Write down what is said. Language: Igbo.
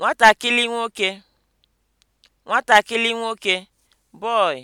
nwatakịrị nwoke nwatakịrị nwoke (boy)